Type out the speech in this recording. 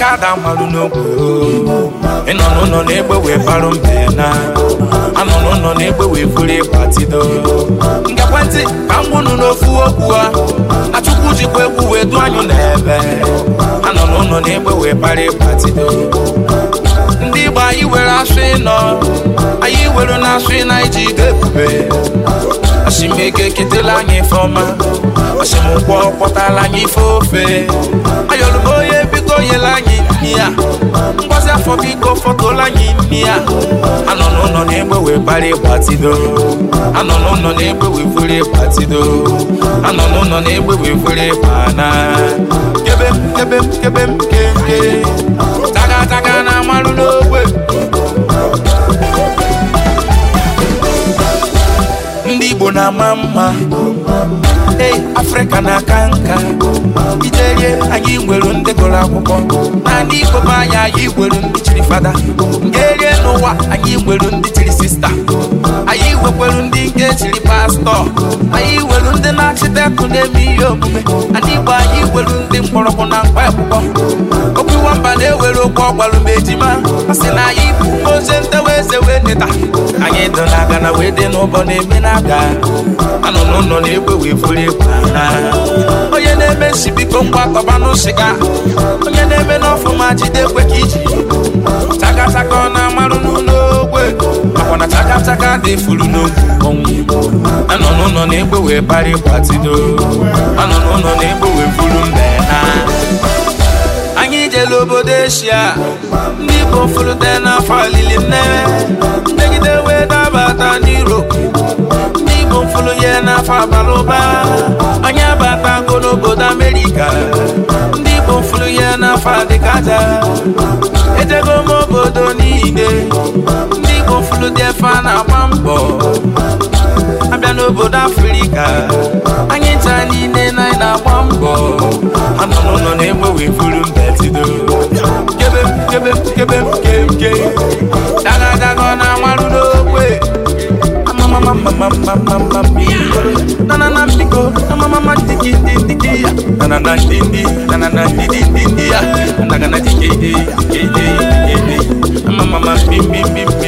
kada malụ n'ogwe ịnọ n'ụlọ na-egbe wee barụ mbe na anọ n'ụlọ na-egbe wee buru ịgbatido nke ekwentị ka m gwụnụ n'ofu okwu a achụkwu jikwa egwu wee du anyụ n'ebe anọ n'ụlọ na-egbe wee bara ịgbatido ndị Igbo anyị were asụ ịnọ anyị were na asụ ịna iji ide ebube asimego eketela anyị ife ọma asimụkwọ kpọtala anyị ife ofe ayọlụbo fọtụla anyị imi ya anọ n'ụlọ na-egbe wee anọ n'ụlọ na-egbe wee anọ n'ụlọ na-egbe wee fere ịgbana kebe m kebe m kebe taga taga na amalụ n'ogbe ndị Igbo na-ama mma ei afrịka na-aka nka iterie anyị nwere ndị gụrụ akwụkwọ na ndị ikom anyị anyị nwere ndị chiri fada nke erie n'ụwa anyị nwere ndị nwekwelu ndị nke chiri pastọ anyị welu ndị na-achịtekụ na-eme ihe omume ndị Igbo anyị welu ndị mkpọrọgwụ na mkpa akwụkwọ okwu nwamba na-ewere okwu ọgbalụ ma ejima a na anyị bụ ozi ntewa eze wee neta anyị dị na aga na wee dị n'ụbọ na-eme na aga anọ n'ụlọ na-egwe wee furu egwu onye na-eme nsi biko ngwa kọba n'ụsịga onye na-eme n'ọfụma jide kwe ka iji chakachaka ọ na-amarụ n'ụlọ Chaka dị furu n'oge anọ n'ụlọ na-egbe wee bari gbatido anọ n'ụlọ na-egbe wee buru mbe na anyị jere obodo eshia ndị igbo furute n'afọ alili nnewe mmegide wee dabata n'iro ndị igbo furu ya n'afọ abalị ụba anyị abatago n'obodo amerịka ndị igbo furu ya n'afọ adịkaja ejego obodo niile ndị gofulu dị efe a na-agba mbọ abịa n'obodo afrịka anyị taa niile na anyị na-agba mbọ anụnụnụ na-egbe wee mbetido kebe kebe kebe kemke daga na amarụ n'okwe nanana na ndidi na ndidi na me,